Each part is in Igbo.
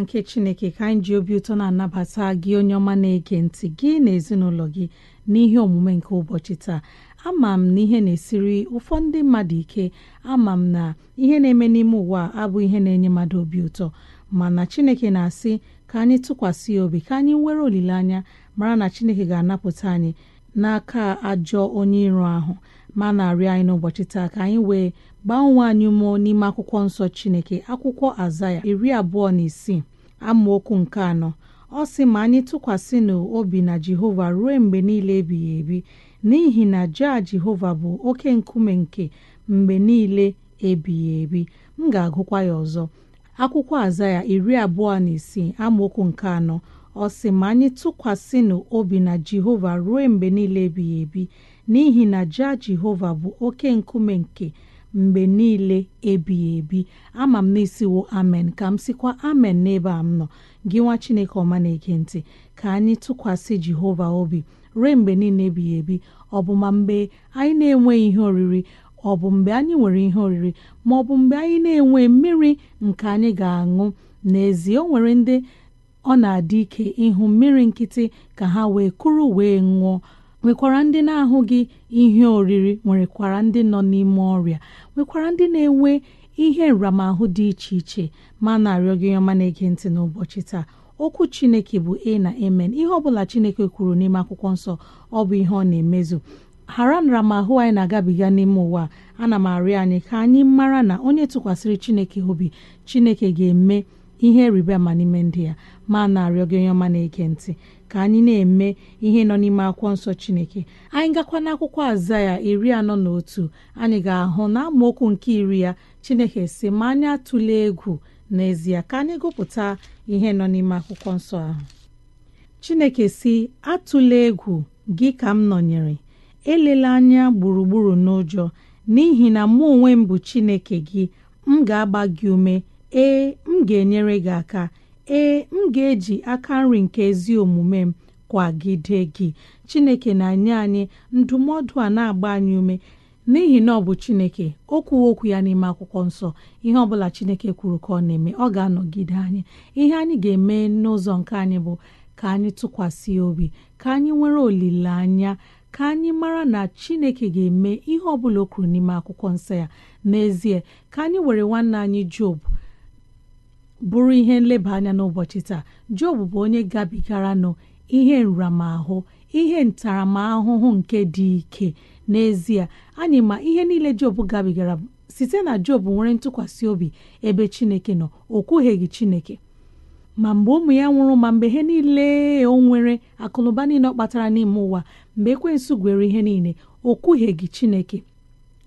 nke chineke ka anyị ji obi ụtọ na-anabata gị onye ọma na-ege ntị gị na ezinụlọ gị n'ihe omume nke ụbọchị taa ama m na ihe na-esiri ụfọdụ ndị mmadụ ike ama m na ihe na-eme n'ime ụwa abụ ihe na-enye mmadụ obi ụtọ mana chineke na-asị ka anyị tụkwasị ya obi ka anyị nwere olileanya mara na chineke ga-anapụta anyị n'aka ajọ onye iro ahụ ma na-arịọ anyị n'ụbọchị taa ka anyị wee gbaa onwe anyị mụọ n'ime akwụkwọ nsọ chineke akwụkwọ azaya iri abụọ na isii amaokwu nke anọ ọ sị ma anyị tụkwasị n'obi na jehova ruo mgbe niile ebighị ebi n'ihi na jaa jehova bụ oke nkume nke mgbe niile ebighị ebi m ga-agụkwa ya ọzọ akwụkwọ aza ya iri abụọ na isii amaokwu nke anọ ọ sị ma anyị tụkwasị n'obi na jehova ruo mgbe niile ebighị ebi n'ihi na jaa jehova bụ oke nkume nke mgbe niile ebighị ebi ama m na amen ka m sikwa amen n'ebe a m nọ gị nwa chineke ọma na ekentị ka anyị tụkwasị jehova obi ruo mgbe niile ebighị ebi ọ bụ ma mgbe anyị na-enweghị ihe oriri ọ bụ mgbe anyị nwere ihe oriri ma ọ bụ mgbe anyị na-enwe mmiri nke anyị ga-aṅụ n'ezie o nwere ndị ọ na-adị ike ịhụ mmiri nkịtị ka ha wee kụrụ wee ṅụọ nwekwara ndị na-ahụghị ihe oriri nwerekwara ndị nọ n'ime ọrịa nwekwara ndị na-enwe ihe nramahụ dị iche iche ma na-arịọ gị ọma na-ege ntị n'ụbọchị taa okwu chineke bụ a na amen ihe ọbụla chineke kwuru n'ime akwụkwọ nsọ ọ bụ ihe ọ na-emezu ghara nramahụ anyị na-agabiga n'ime ụwa ana m arịọ anyị ka anyị mara na onye tụkwasịrị chineke obi chineke ga-eme ihe rịba ma n'ime ndị ya ma na-arịọ gị onye ọma na-ege ntị ka anyị na-eme ihe nọ n'ime akwụkwọ nsọ Chineke anyị gakwa n'akwụkwọ ya iri anọ na otu anyị ga-ahụ na amaokwu nke iri ya Chineke si ma anyị atụla egwu n'ezie ka anyị gụpụta ihe nọ n'ime akwụkwọ nsọ ahụ Chineke si atụle egwu gị ka m nọnyere elela anya gburugburu n'ụjọ n'ihi na mụ onwe m bụ Chineke gị m ga-agba gị ume ee m ga-enyere gị aka ee m ga-eji aka nri nke ezi omume m kwagide gị chineke na-enye anyị ndụmọdụ a na-agba anyị ume n'ihi na ọ bụ chineke okwu okwu ya n'ime akwụkwọ nsọ ihe ọbụla chineke kwuru ka ọ na-eme ọ ga-anọgide anyị ihe anyị ga-eme n'ụzọ nke anyị bụ ka anyị tụkwasị obi ka anyị nwere olileanya ka anyị mara na chineke ga-eme ihe ọbụla o kwuru n'ime akwụkwọ nsọ ya n'ezie ka anyị were nwanne anyị job bụrụ ihe nleba anya n'ụbọchị taa Job bụ onye gabigara nọ ihe nramahụ ihe ntaramahụhụ nke dị ike n'ezie anyị ma ihe niile Job gabigara site na Job nwere ntụkwasị obi ebe Chineke nọ o gị Chineke ma mgbe ụmụ ya nwụrụ ma mgbe ihe niile o nwere akụnụba niile ọ kpatara n'ime ụwa mgbe ekwensu gwere ihe niile o gị Chineke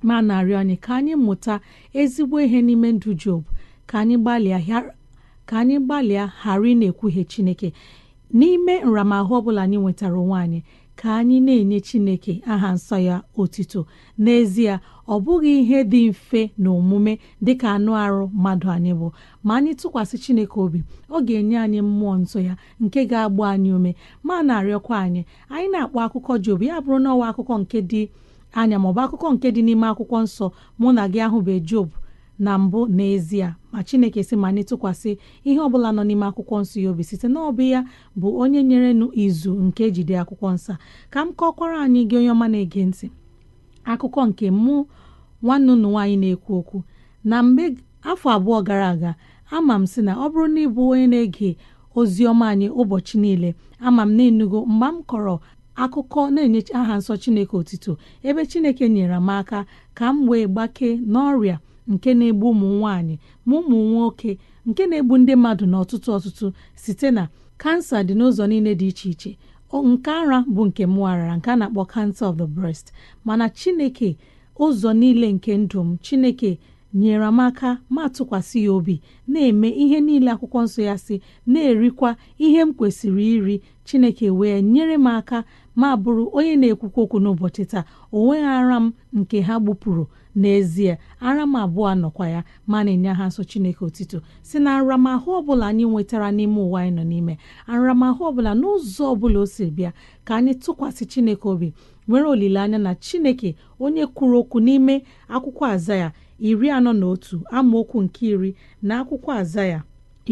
ma narị anyị ka anyị mụta ezigbo ihe n'ime ndụ Job ka anyị gbalịa ka anyị gbalịa ghara ị na-ekwuhie Chineke n'ime nramahụ ọbụla anyị nwetara onwe anyị ka anyị na-enye Chineke aha nsọ ya otito n'ezie ọ bụghị ihe dị mfe na omume dịka anụ arụ mmadụ anyị bụ ma anyị tụkwasị Chineke obi ọ ga-enye anyị mmụọ nsọ ya nke ga-agba anyị ume ma na-arịọkwa anyị anyị na-akpọ akụkọ Job ya bụrụ na akụkọ nke dị anya maọbụ akụkọ nke dị n'ime akwụkwọ nsọ mụ na gị bụ Job na mbụ n'ezie ma chineke si ma anyị tụkwasị ihe ọbụla nọ n'ime akwụkwọ nsọ ya obi site n'ọbụ ya bụ onye nyere nụ izu nke jide akwụkwọ nsọ ka m kọkwara anyị gị onye ọma na-ege ntị akụkọ nke mụ nwanne ụnụ nwaanyị na-ekwu okwu na mgbe afọ abụọ gara aga ama m si na ọ bụrụ na ịbụ onye na-ege ozi ọma anyị ụbọchị niile ama m na-enugo mgbe m kọrọ akụkọ na-enye aha nsọ chineke otito ebe chineke nyere m aka ka m wee gbakee n'ọrịa nke na-egbu ụmụ nwanyị ma ụmụ nwoke nke na-egbu ndị mmadụ na ọtụtụ ọtụtụ site na kansa dị n'ụzọ niile dị iche iche nke ara bụ nke mụ arara nke a na-akpọ cancer of the breast mana chineke ụzọ niile nke ndụ m chineke nyere m aka ma tụkwasị ya obi na-eme ihe niile akwụkwọ nsọ ya si na-erikwa ihe m kwesịrị iri chineke wee nyere m aka ma bụrụ onye na-ekwukwa okwu n'ụbọchị taa o nweghị ara m nke ha gbupụrụ n'ezie ara m abụọ anọkwa ya ma na-enye ha nsọ chineke otito si na nramahụ ọbụla anyị nwetara n'ime ụwa anyị nọ n'ime nramahụ ọbụla n'ụzọ ọbụla o si bịa ka anyị tụkwasị chineke obi nwere olileanya na chineke onye kwuru okwu n'ime akwụkwọ azaya iri anọ na otu amaokwu nke iri na akwụkwọ azaya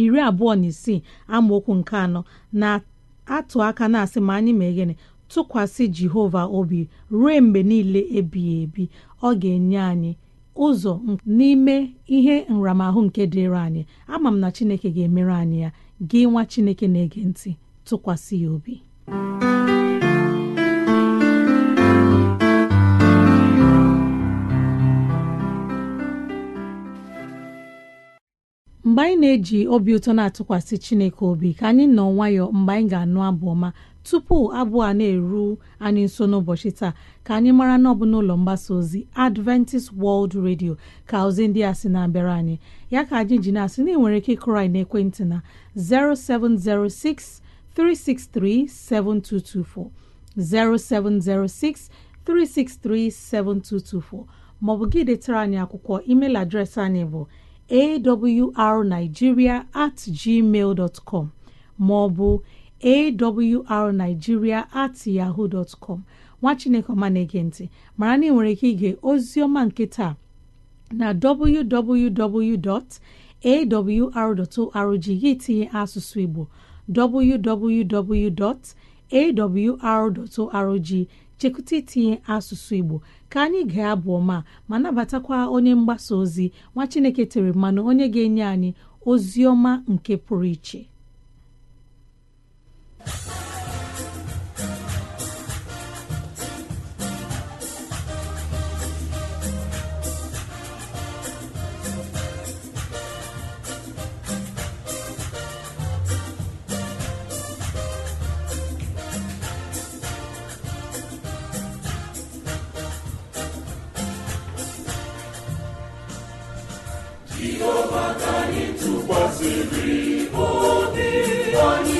iri abụọ na isii amaokwu nke anọ na atụ aka na-asị ma anyị ma gịnị tụkwasị Jehova obi ruo mgbe niile ebighị ebi ọ ga-enye anyị ụzọ n'ime ihe nramahụ nke dịrị anyị ama m na Chineke ga-emere anyị ya gị nwa Chineke na-ege ntị tụkwasị ya obi mgbe anyị na-eji obi ụtọ na-atụkwasị Chineke obi ka anyị nọ nwayọọ mgbe anyị ga-anụ abụ ọma tupu abụ a na-eru anyị nso n'ụbọchị taa ka anyị mara na ọ n'ụlọ mgbasa ozi Adventist World Radio ka ozi ndị a sị na-abịara anyị ya ka anyị ji na-asị na ị nwere ike ịkụrụ na ekwentị na 0706 363 maọbụ gị detara anyị akwụkwọ email adreesị anyị bụ awrnigeria at gmail dot com ma ọ at yahoo dot nwa chineke ọma na-ege ntị mara na ị nwere ike ige ozi ọma nke taa na www.awr.org gị tinye asụsụ igbo www.awr.org chekwute itinye asụsụ Igbo ka anyị gaa abụ ọma ma nabatakwa onye mgbasa ozi nwa Chineke tere mmanụ onye ga-enye anyị ozi ọma nke pụrụ iche tụkwasịrị obi anyị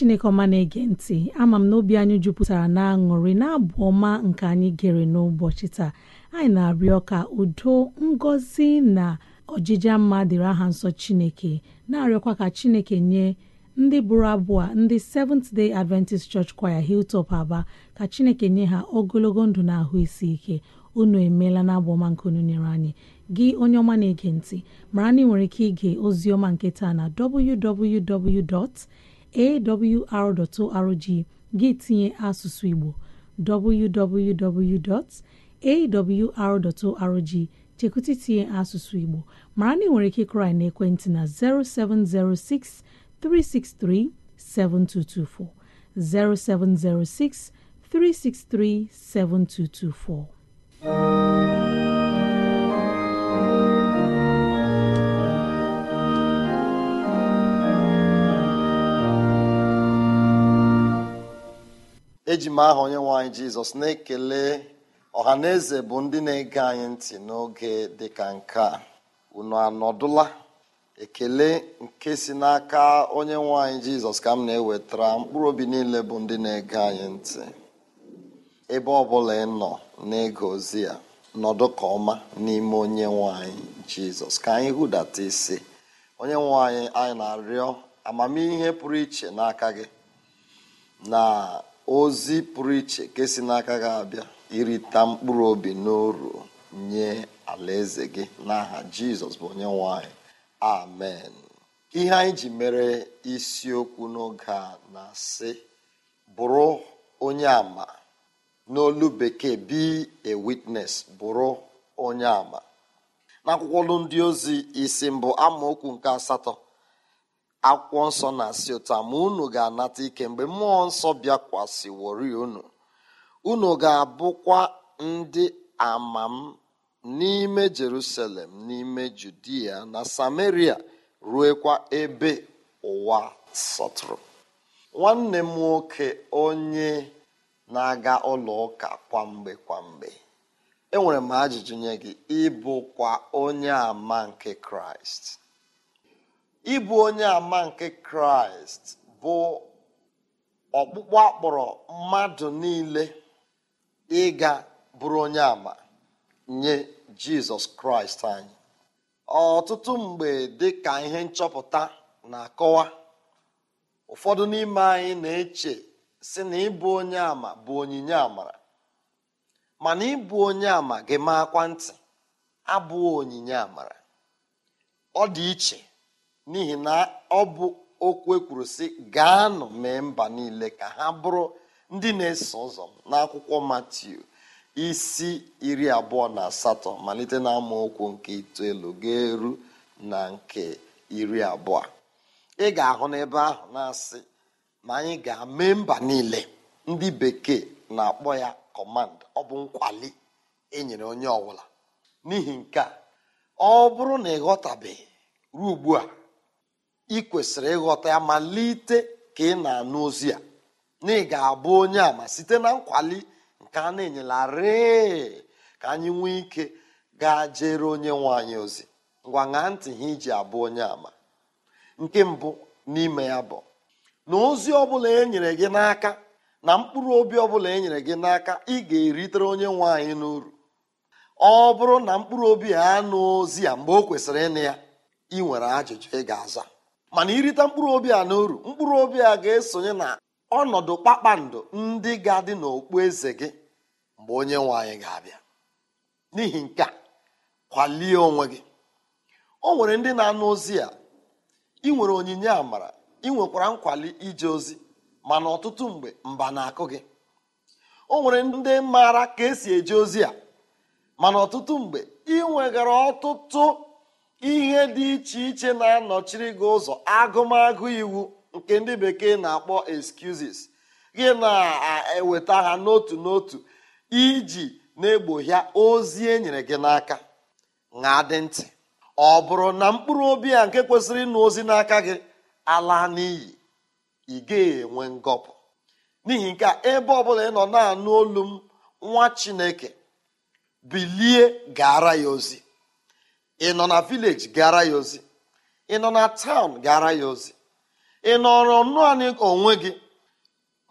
chineke ọma na-ege ntị ama m n'obi anyị jupụtara aṅụrị na-abụ ọma nke anyị gere n'ụbọchị taa anyị na-arịọ ka udo ngozi na ojija mma dịrị aha nsọ chineke na-arịọkwa ka chineke nye ndị bụrụ abụọ ndị Seventh Day Adventist Church Choir hiltop Aba ka chineke nye ha ogologo ndụ na ahụ isi ike unu emeela na abụ ọma nke unu nyere anyị gị onye ọma na-ege ntị mara na ị nwere ike ige ozi ọma nke taa na www. awr.org gị tinye asụsụ Igbo www.awr.org chekwụta itinye asụsụ Igbo mara na ị nwere ike ịkụrụ anyị n'ekwentị na 0706 363 7224 0706 363 7224 eji m aha onye nwe anyị jizọs na-ekele ọha eze bụ ndị na-ege anyị ntị n'oge dịka nke a unu anọdụla ekele nke si n'aka onye nwe anyị jizọs ka m na-ewetara mkpụrụ obi niile bụ ndị na-ege anyị ntị ebe ọ bụla ị nọ n'ịga ozi ya nọdụ ka ọma n'ime onye nwanyị jizọs ka anyị hụdata isi onye nwe anyị anyị na-arịọ amamihe pụrụ iche n'aka gị na ozi pụrụ iche nke si n'aka gị abịa irita mkpụrụ obi n'oru nye alaeze gị n'aha jizọs bụ onye nwanyị amen ihe anyị ji mere isiokwu n'oge a na-asị bụrụ onye ama n'olu bekee be a witness bụrụ onye ama n'akwụkwọ ndị ozi isi mbụ amaokwu nke asatọ akwụkwọ nsọ na-asị ụta ma unu ga-anata ike mgbe mmụọ nsọ bịakwasịwori unu unu ga-abụkwa ndị ama n'ime jerusalem n'ime judia na samaria ruekwa ebe ụwa sọtụrụ nwanne m nwoke onye na-aga ụlọ ụka kwamgbe kwamgbe enwere m ajụjụ nye gị ịbụkwa onye ama nke kraịst ịbụ onye ama nke kraịst bụ ọkpụkpọ akpọrọ mmadụ niile ịga bụrụ onye ama nye jizọs kraịst anyị ọtụtụ mgbe dị ka ihe nchọpụta na-akọwa ụfọdụ n'ime anyị na-eche si na ịbụ onye ama bụ onyinye amara mana ịbụ onye ama gị maakwa ntị abụọ onyinye amara ọ dị iche n'ihi na ọ bụ okwu ekwuru sị gaanụ mee mba niile ka ha bụrụ ndị na-eso ụzọ n'akwụkwọ Matiu isi iri abụọ na asatọ malite na okwu nke itoolu ga-eru na nke iri abụọ ị ga-ahụ n'ebe ahụ na-asị ma anyị ga-eme mba niile ndị bekee na-akpọ ya kọmand ọ bụ nkwali enyere onye ọbụla n'ihi nke a ọ bụrụ na ịghọtabeghị ruo ugbu a ị kwesịrị ịghọta ya malite ka ị na-anụ ozi a na ị ga-abụ onye ama site na nkwali nke a na enyelarị ka anyị nwee ike gaa jere onye nwe anyị ozi ngwa ṅaa ntị ha iji abụ onye ama nke mbụ n'ime ya bụ na ozi ọbụla e nyere gị n'aka na mkpụrụ obi ọbụla e nyere gị n'aka ị ga-eritere onye nwe anyị n'uru ọ bụrụ na mkpụrụ obi a anụ ozi ya mgbe o kwesịrị ịnụ ya ị nwere ajụjụ ị ga-aza mana irite mkpụrụ obi a na mkpụrụ obi a ga-esonye na ọnọdụ kpakpando ndị ga-adị n'okpu eze gị mgbe onye nwe anyị ga-abịa n'ihi nke a kwalie onwe gị o nwere ndị na-anụ ozi a ị nwere onyinye amara ị nwekwara nkwali ije ozi mana ọtụtụ mgbe mba na-akụ gị o nwere ndị maara ka esi eje ozi a mana ọtụtụ mgbe ị nwegara ọtụtụ ihe dị iche iche na-anọchiri gị ụzọ agụmagụ iwu nke ndị bekee na-akpọ excuses gị na-eweta ha n'otu n'otu iji na-egbohia ozi e nyere gị n'aka na dị ntị ọ bụrụ na mkpụrụ obi a nke kwesịrị ịnụ ozi n'aka gị ala n'iyi ị ga-enwe ngọpụ n'ihi nke a ebe ọbụla ị nọ na-anụ olu m nwa chineke bilie gaara ya ozi ị nọ na vileji gara ya ozi ị nọ na taụn gara ya ozi ị nọrọ naanị onwe gị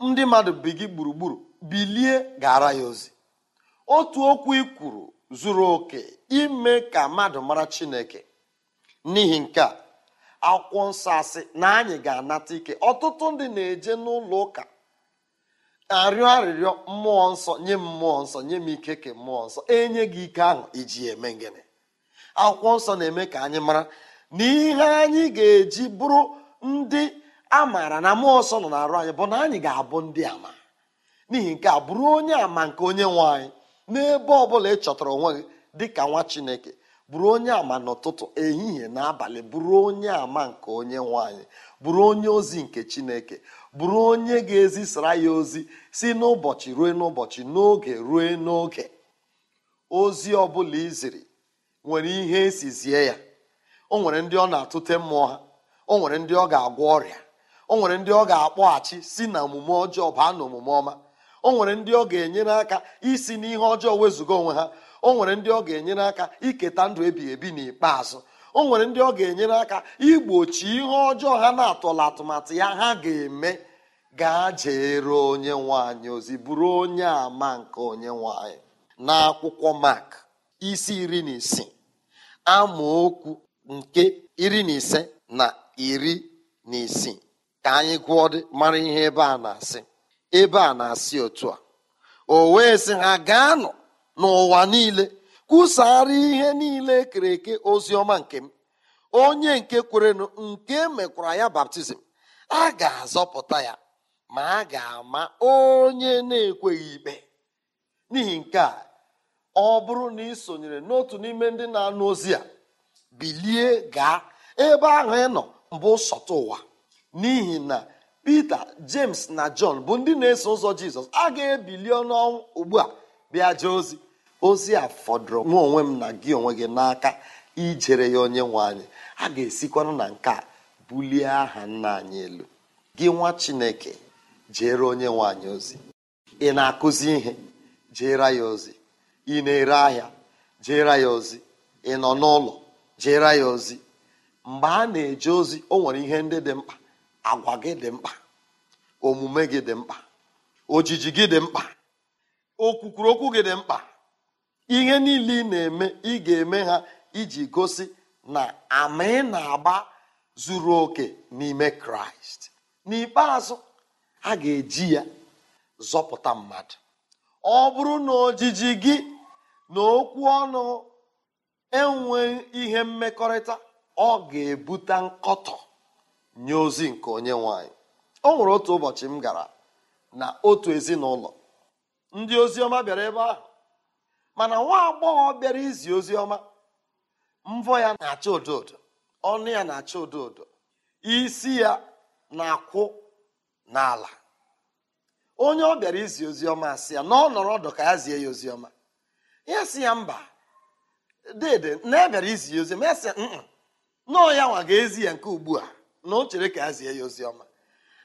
ndị mmadụ bi gị gburugburu bilie gara ya ozi otu okwu ị kwuru zuru oke ime ka mmadụ mara chineke n'ihi nke a akwụkwọ nsọ asị na anyị ga-anata ike ọtụtụ ndị na-eje n'ụlọ ụka arịọ arịrịọ mmụọ nsọ nye m mmụọ nsọ nye m ike ke mmụọ nsọ enye gị ike ahụ iji eme gịnị akwụkwọ nsọ na-eme ka anyị mara na ihe anyị ga-eji bụrụ ndị maara na mmụọ nsọ nọ n'arụ anyị bụ na anyị ga-abụ ndị ama n'ihi nke a bụrụ onye ama nke onye nwe anyị n'ebe ọ bụla ị chọtara onwe gị dị ka nwa chineke bụrụ onye ama n'ụtụtụ ehihie na abalị bụrụ onye ama nke onye nwanyị bụrụ onye ozi nke chineke bụrụ onye ga-ezisara ya ozi si n'ụbọchị ruo n'ụbọchị n'oge ruo n'oge ozi ọ bụla iziri nwere ihe zie ya o nwere ndị ọ na-atụte mmụọ ha o nwere ndị ọ ga-agwọ ọrịa o nwere ndị ọ ga-akpọghachi si na omume ọjọọ baa na omume ọma o nwere ndị ọ ga-enyere aka isi n'ihe ọjọọ wezụga onwe ha o nwere ndị ọ ga-enyere aka iketa ndụ ebighị ebi n'ikpeazụ o nwere ndị ọ ga-enyere aka igbochi ihe ọjọọ ha na-atọla atụmatụ ya ha ga-eme gaa jeere onye nwanyị ozi bụrụ onye ama nke onye nwanyị n'akwụkwọ mark. isi iri na isii amaokwu nke iri na ise na iri na isii ka anyị gụọ dị mara ihe ebe a na-asị ebe a na-asị otu a o wee sị ha gaanụ n'ụwa niile kwusara ihe niile kere eke ozi ọma nke m onye nke kwerenụ nke mekwara ya baptizim a ga-azọpụta ya ma a ga-ama onye na-ekweghị ikpe n'ihi nke a ọ bụrụ na ị sonyere n'otu n'ime ndị na-anụ ozi a bilie gaa ebe ahụ ị nọ mbụ sọta ụwa n'ihi na Pita James na John bụ ndị na-eso ụzọ Jizọs a ga-ebili ọnụọnwụ ugbu a bịa jee ozi ozi a fọdụrụ nwa onwe m na gị onwe gị n'aka ijere ya onye nwe anyị a ga-esikwanụ na nke a bulie aha nna anyị elu gị nwa Chineke jere onye nwe anyị ozi ị na-akụzi ihe jere ya ozi ị na-ere ahịa jeere ya ozi ị nọ n'ụlọ jeere ya ozi mgbe a na eji ozi o nwere ihe ndị dị mkpa agwa gị dị mkpa omume gị dị mkpa ojiji gị dị mkpa okwukwuru okwu gị dị mkpa ihe niile ị na-eme ị ga-eme ha iji gosi na ama ị na-agba zuru oke n'ime kraịst n'ikpeazụ a ga-eji ya zọpụta mmadụ ọ bụrụ na ojiji gị na okwu ọnụ enwe ihe mmekọrịta ọ ga-ebute nkọtọ nye ozi nke onye nwanyị o nwere otu ụbọchị m gara na otu ezinụlọ ndị ozi ọma bịara ebe ahụ mana nwa agbọghọ bịara izi ozi ọma, mvọ ya na-acha odo odo ọnụ ya na-acha odo odo isi ya na-akwụ n'ala onye ọ bịara izi ọma asị ya na ọ nọrọ ọdụ ka ya zie ya ọma. ya sị ya mba dede na ya bịara izi ya ozi ma ya ya nwa ga-ezi ya nke ugbu a na o chere ka ya zie ya ozi ọma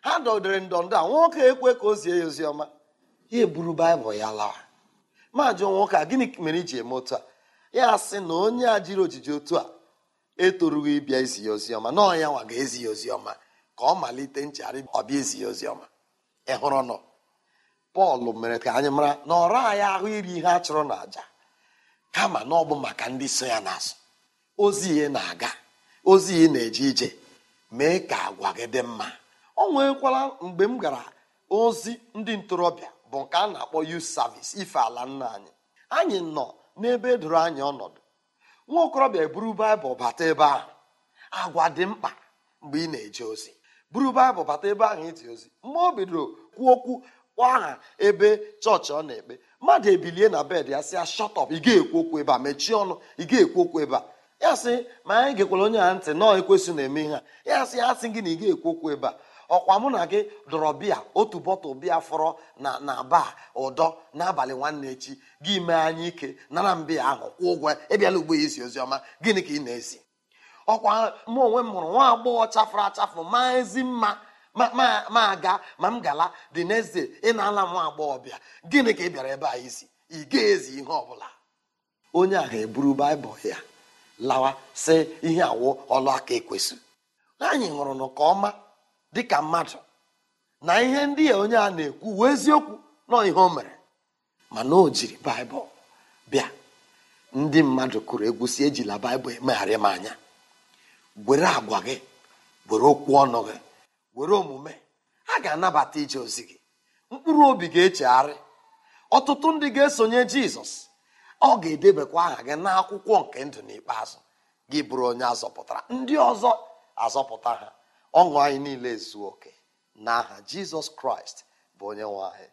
ha dọdere ndọndọ a nwoke ekwe ka o zie ya ozi ọma ya eburu baịbụl ya lawa maajụ nwoke a gịnị mere iji eme otu a ya sị na onye a jiri ojiji otu a etorughị ịbịa izi ya ozi ọma nọọ ya nwa ga-ezi ya ozi ọma ka ọ malite nchegharị ọbịa ezi ya ozi ọma ị hụrụ pọl mere ka anyị mara na ọra anyị ahụ iri ihe a chụrụ na kama na ọ bụ maka ndị so ya n'azụ ozi ihe na-aga ozi ihe na-eje ije mee ka agwa gị dị mma ọ nwekwara mgbe m gara ozi ndị ntorobịa bụ nke a na-akpọ yut savis ife ala nna anyị anyị nọ n'ebe edoro anyị ọnọdụ nwa okorobịa eburu baịbụl bata ebe ahụ agwa dị mkpa mgbe ị na-eje ozi buru baịbụl bata ebe ahụ iti ozi mgbe o bidoro kwuo okwu kwa aha ebe chọọchị ọ na-ekpe mmadụ ebilie na bed ya sị ya shọtọp ị ga-ekwu okwu ebe a mechie ọnụ ị ga-ekwu okwu ebe a ya sị ma anyị gekwara onye ha ntị nọọ ekwesị na-eme ihe a ya sị ya sị gị na ị ga-ekwu okwu ebe a ọkwa mụ na gị dọrọ bịa otu bọtụl bịa fọrọ na na baa ụdọ n'abalị nwanne echi gị mee anyị ike nara mbịa ahụ kwụ ụgwọ ịbịala ugbo ya isi oziọma gịnị ka ị na-esi ọkwa mụ onwe m hụrụ nwa agbọghọ chafụrụ achafụ maa ezi mma ma aga ma m gala dị next ị na-ala nwa agbọghọbịa gịnị ka ị bịara ebe a isi ị ga-ezi ihe ọbụla onye a ga-eburu baịbụl ya lawa sị ihe awụ ọlụ aka ekwesị anyị ṅụrụ nụ ọma dịka mmadụ na ihe ndị a onye a na-ekwu wee eziokwu nọ ihe o mere mana o jiri baịbụl bịa ndị mmadụ kụrụ egwu ejila baịbụl emegharị m anya were agwa gị were okwu ọnụ gị were omume ha ga-anabata ije ozi gị mkpụrụ obi ga-echegharị ọtụtụ ndị ga-esonye jizọs ọ ga-edebekwa aha gị n'akwụkwọ nke ndụ n'ikpeazụ gị bụrụ onye azọpụtara ndị ọzọ azọpụta ha ọṅụ anyị niile zuo oke n'aha jizọs kraịst bụ onye nwe anyị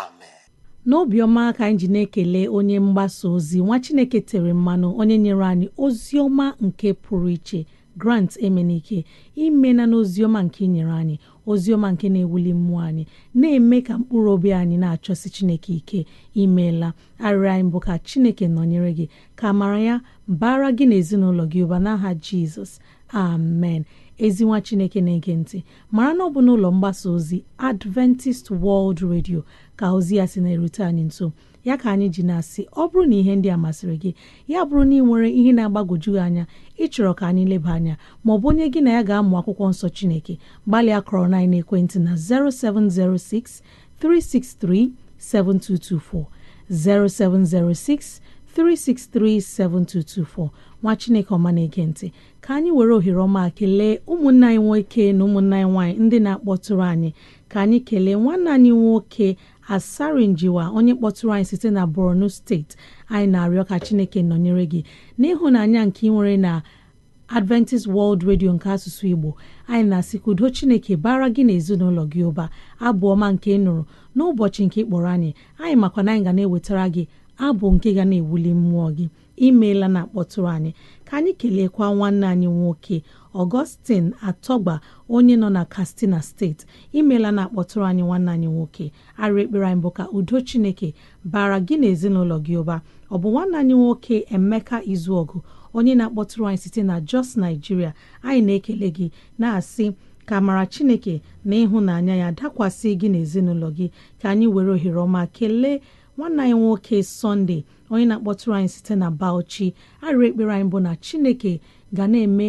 amen n'obiọma ka anyị ji na-ekele onye mgbasa ozi nwa chineke tere mmanụ onye nyere anyị ozi ọma nke pụrụ iche grant emenike imena n'oziọma nke inyere anyị oziọma nke na-ewuli mmụọ anyị na-eme ka mkpụrụ obi anyị na-achọsi chineke ike imeela arịrị anyị bụ ka chineke nọnyere gị ka mara ya bara gị na ezinụlọ gị ụba n'aha jizọs amen ezinwa chineke na-ege ntị mara na ọ bụ n'ụlọ mgbasa ozi adventist world radio ka ozi ya si na-erute anyị nso ya ka anyị ji na-asị ọ bụrụ na ihe ndị a masịrị gị ya bụrụ na ị nwere ihe na-agbagwoju gị anya ịchọrọ ka anyị leba anya ma ọ onye gị na ya ga-amụ akwụkwọ nsọ Chineke gbalịa kọrọ na ekwentị na 0706 363 7224 0706 363 7224 nwa Chineke ọma na-ege ka anyị were ohere ọma kelee ụmụnne anyị nwoke na ụmụnne anyị nwaanyị ndị na-akpọtụrụ anyị ka anyị kelee nwanne anyị nwoke Asari Njiwa onye kpọtụrụ anyị site na Borno steeti anyị na-arịọ ka Chineke nọnyere gị n'ịhụnanya nke ị nwere na Adventist World Radio nke asụsụ Igbo anyị na-asị ka udo Chineke bara gị na ezinụlọ gị ụba abụọma nke ị nụrụ n'ụbọchị nke ịkpọrọ anyị anyị makwa na anyị ga na-ewetara gị abụ nke ga na-ewuli mmụọ gị imeela na akpọtụrụ anyị ka anyị keleekwa nwanne anyị nwoke Augustine Atọgba onye nọ na Katsina steeti imela na akpọtụrụ anyị nwanne anyị nwoke arịa ekpere anyị bụ ka udo Chineke bara gị na ezinụlọ gị ụba ọ bụ nwanne anyị nwoke Emeka Izuọgụ onye na-akpọtụrụ anyị site na Jos naijiria anyị na-ekele gị na-asị ka mara Chineke na ịhụnanya ya dakwasị gị na ezinụlọ gị ka anyị were ohere ọma kelee nwanna anyị nwoke sọnde onye na-akpọtụrụ anyị site na Bauchi arịa ekpere anyị bụ na Chineke ga na-eme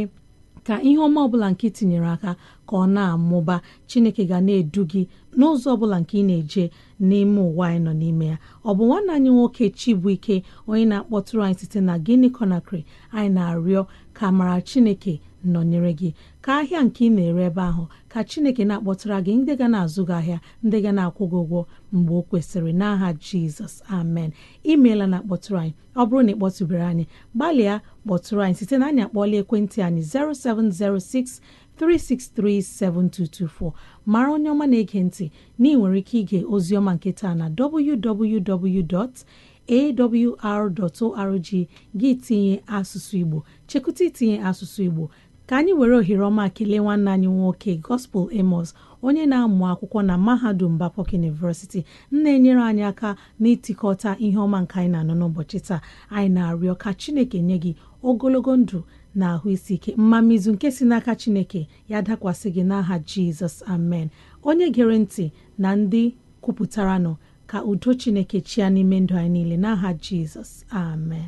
ka ihe ọma ọbụla nke tinyere aka ka ọ na-amụba chineke ga na-edu gị n'ụzọ ọbụla nke ị na-eje n'ime ụwa anyị nọ n'ime ya ọ bụ nwanne anyị nwoke chibụike onye na-akpọtụrụ anyị site na Guinea Conakry anyị na-arịọ ka amara chineke nọnyere gị ka ahịa nke ị na-ere ebe ahụ ka chineke na akpọtụra gị ndị ga na-azụ gị ahịa ndị ga na-akwụ gị ụgwọ mgbe o kwesịrị n'aha Jizọs amen imeela na-akpọtụrụ anyị ọ bụrụ na ị kpọtụbere anyị gbalịa kpọtụrụ anyị site na anyị akpọọla ekwentị anyị 0706 7224 mara onye ọma na-ege ntị na ị nwere ike ige oziọma nke taa na www.awr.org gị tinye asụsụ Igbo chekụta itinye asụsụ Igbo ka anyị were ohere ọma kelee nwanne anyị nwoke Gospel Amos onye na-amụ akwụkwọ na mahadum Babcock University na-enyere anyị aka n'ịtịkọta ihe ọma nke anyị na-anọ n'ụbọchị taa anyị na-arịọ ka Chineke nye gị ogologo ndụ na ahụ isi ike mmamizu nke si n'aka Chineke ya dakwasị gị n'aha Jizọs amen onye gere ntị na ndị kwupụtaranụ ka udo Chineke chia n'ime ndụ anyị niile n'aha Jizọs amen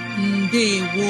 ndewo